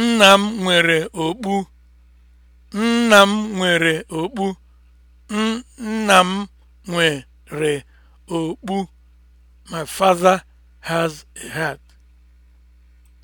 Nna m nwere okpu. Nna m nwere okpu. Nna m nwere okpu. My father has a heart